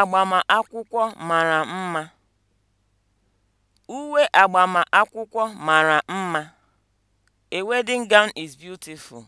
agbamakwụkwọ mara mma. Uwe agbamakwụkwọ mara mma. A wedding gown is beautiful.